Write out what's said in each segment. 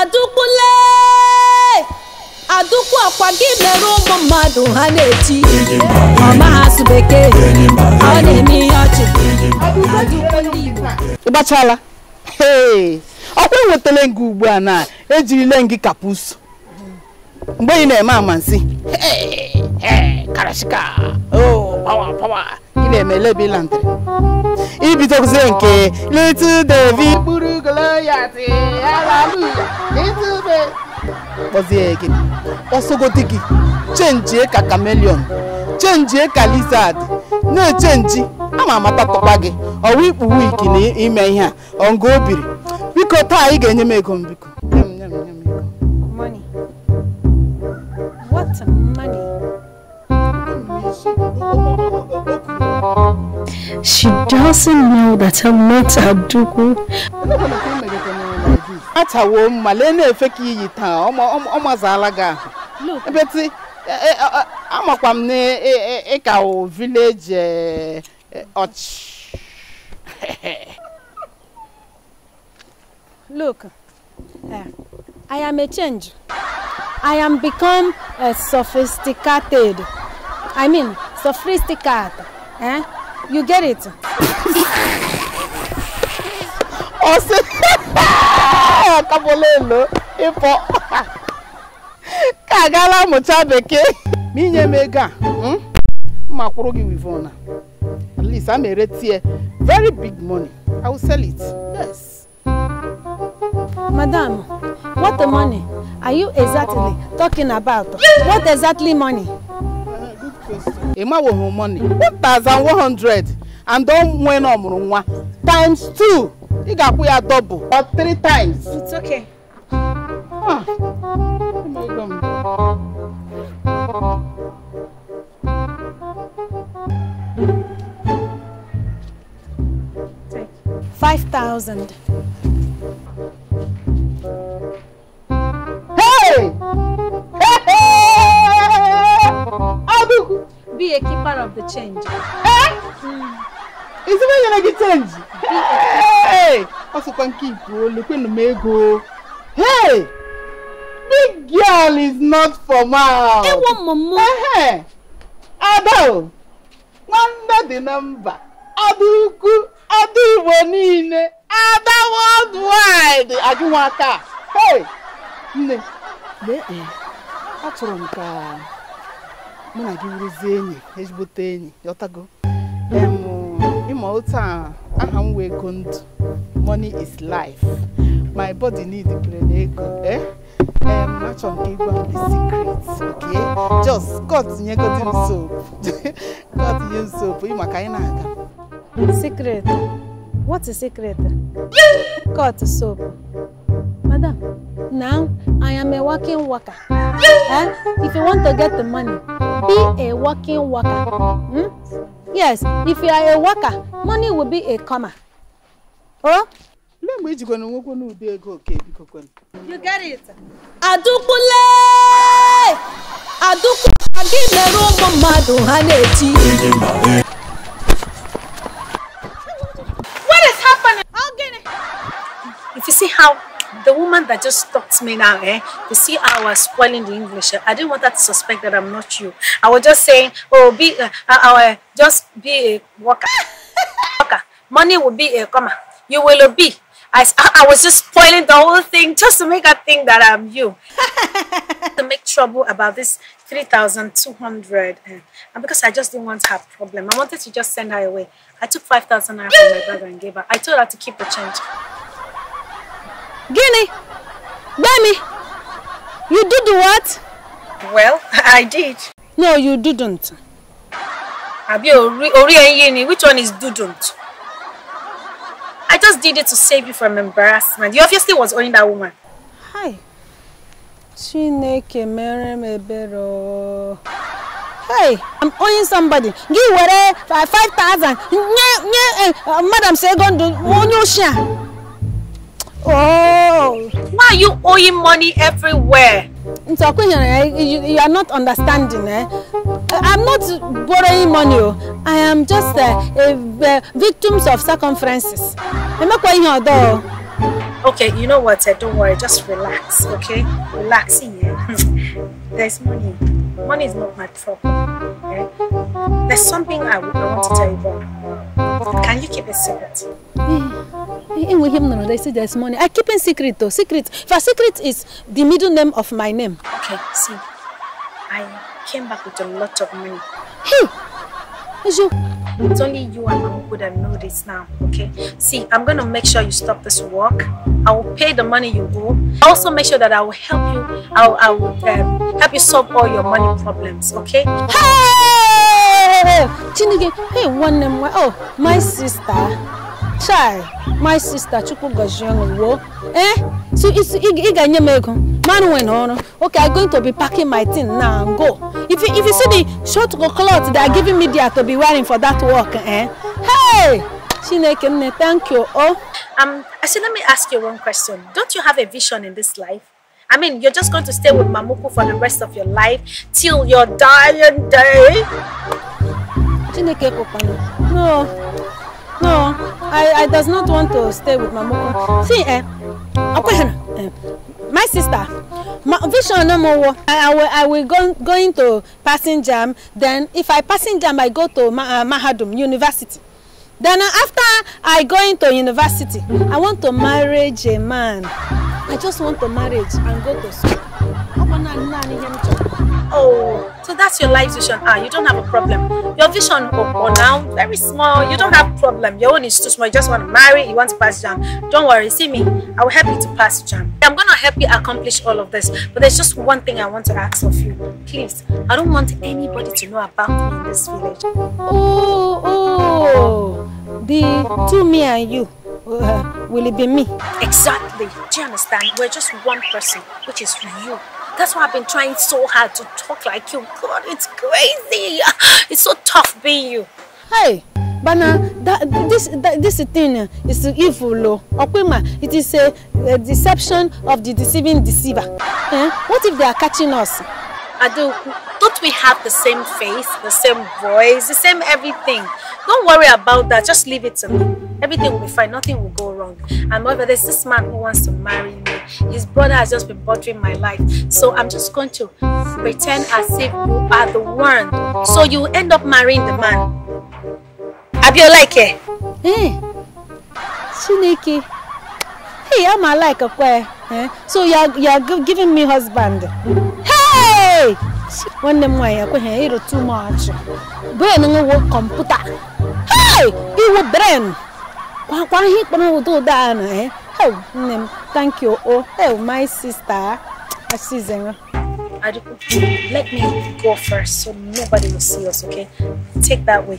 adụkwule adụkwu ọkwa gị mere ụmụ mmadụ ha na-eti ọma asụ bekee ọ na-eme ihe ọchị ịgbachala ọkwa enwetala nga ugbu a na ejirile ngị kapus mgbe ị na-eme amansi karashika pawa oh! pawa ị na-eme lebelantịrị ibidozie nke little david Gloria ti hallelujah kpọzi gị ọsọgodi gị chenjie ka kamelion chenjie ka lizard na-echenji ama amata tọkwa gị ọwa ikpu wiki na ime ihe a ọnga o biko taa ị ga-enye m ego m biko Money. She doesn't know that I'm not Abduku. Atawo male na efe ka iyi taa ọmọ ọmọ zaala gị Ebeti amakwa m na ị ka village ọchị. E, e, Look, eh, I am a change. I am become a eh, sophisticated. I mean, sophisticated. Eh? You get it? Ọ sị kabolelo ịpọ ka agala mụcha bekee ma inye m ego a hmm? ma kwụrụ gị wivona at least ere tie. very big money I will sell it yes. Madam, what the money are you exactly talking about? What exactly money? ịmanweghị money hundred and onwe na ọmụrụ nwa times two. ị ga-akwụ ya double or three times. It's okay. Ah. Five thousand. Be a keeper of the change. Eh? Is it when you like change? Hey! Also, can keep look in the mego. Hey! Big girl is not for mouth. Hey, one mama. Eh? Ado! Wonder the number. Ado uku, ado iwo niile, ada worldwide. Ajụ nwa aka. Hey! ne, ne, atụrụ m ka mụ na gị wụrụzie enyi ezigbote enyi yọtago ịma otu a aha m wee ndụ money is life my body need pere na ego eh achọ nke ịgwa m the secret okay just cut nye godin soap cut nye soap ịma ka anyị na-aga secret what is secret cut soap madam now i am a working worker eh? if you want to get the money be a working worker. Hmm? Yes, if you are a worker, money will be a comma Oh? You get it? Adukule! Adukule! Again, the room, Madu, Haneti. that just stopped me now, eh? You see how I was spoiling the English. Eh? I didn't want her to suspect that I'm not you. I was just saying, oh, be, uh, uh, uh, uh just be a worker. worker. Money will be a comma. You will be. I, I was just spoiling the whole thing just to make her think that I'm you. to make trouble about this 3,200. Eh? And because I just didn't want her problem, I wanted to just send her away. I took 5,000 naira from my brother and gave her. I told her to keep the change. Guinea! Gbemi, you did what? Well, I did. No, you didn't. Àbí orí orí which one is didn't? I just did it to save you from embarrassment. You obviously was owing that woman. Hi. Chineke mere m Hey, I'm owing somebody. Gị were 5,000. Nye nye eh, madam say go do Oh. Why are you owing money everywhere? You are not understanding. Eh? Uh, I'm not borrowing money. Oh. I am just uh, uh, victims of circumferences. I'm not going your though. Okay, you know what? Eh, don't worry. Just relax, okay? Relax There's money. Money is not my problem. Okay? Eh? There's something I, want to tell you about. Can you keep it secret? Hmm him, no, they say there's money. I keep in secret though. Secret. For secret is the middle name of my name. Okay, see. I came back with a lot of money. Hey! It's you. It's only you and Uncle that know this now, okay? See, I'm gonna make sure you stop this work. I will pay the money you owe. Also make sure that I will help you. I will, I will um, help you solve all your money problems, okay? Hey! hey, one name. Oh, my sister chai my sister chukwugojiwo eh so ị ga-enye m ego manwe okay i'm going to be packing my thing now and go if you, if you see the short clothes they are giving me there to be wearing for that work eh hey chineke thank you oh um i said let me ask you one question don't you have a vision in this life I mean, you're just going to stay with Mamuku for the rest of your life till your dying day. No, no, I, I does not want to stay with my Mamoko. See, eh, eh? my sister, my vision no more. I, I will, I will go, go into passing jam. Then if I passing jam, I go to Ma uh, Mahadum University. Then uh, after I go into university, I want to marry a man. I just want to marry and go to school. Oh. So that's your life vision. Ah, you don't have a problem. Your vision for, oh, oh, now, very small. You don't have problem. Your own is too small. You just want to marry. You want to pass jam. Don't worry. See me. I will help you to pass jam. I'm going to help you accomplish all of this. But there's just one thing I want to ask of you. Please, I don't want anybody to know about me in this village. Oh, oh. The two me and you. Uh, will it be me? Exactly. Do you understand? We're just one person, which is you. That's why I've been trying so hard to talk like you. God, it's crazy. It's so tough being you. Hey, Bana, this this thing is evil. Okwema, it is a, a deception of the deceiving deceiver. Eh? What if they are catching us? Adoku, don't we have the same face, the same voice, the same everything? Don't worry about that. Just leave it to me. Everything will be fine. Nothing will go wrong wrong. And moreover, there's this man who wants to marry me. His brother has just been bothering my life. So I'm just going to pretend as if you are the one. So you end up marrying the man. Have you it? Hey, Chineke. Hey, I'm a like a eh? So you're, you're giving me husband. Hey! One them way, I eh, too much. Brain, I will computer. Hey! You will brain. kwa kwa ihe kpọrọ ụda ụda a na e eh. hel oh, nne m thank you o oh. hel oh, my sister asizera. Adiku, let me go first so nobody will see us, okay? Take that way.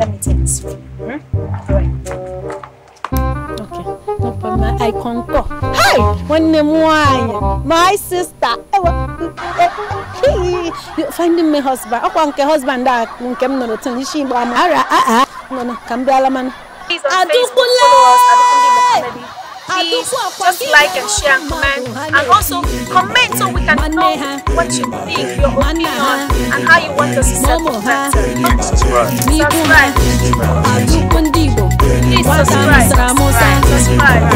Let me take this way. Hmm? All right. Okay. No problem. I concur. Hey! Nwanne m nwanyị, my sister. You eh, eh, finding me husband. Ọkwa nke husband That ah, nke m nọrọ tin isi Igbo ama. Ara a uh-uh. no. Nọ na ka m bịala Adukunle! Please just like and share and comment and also comment so we can know what you think, your opinion and how you want us to set the pattern. Subscribe. Subscribe. Please subscribe. Subscribe. subscribe.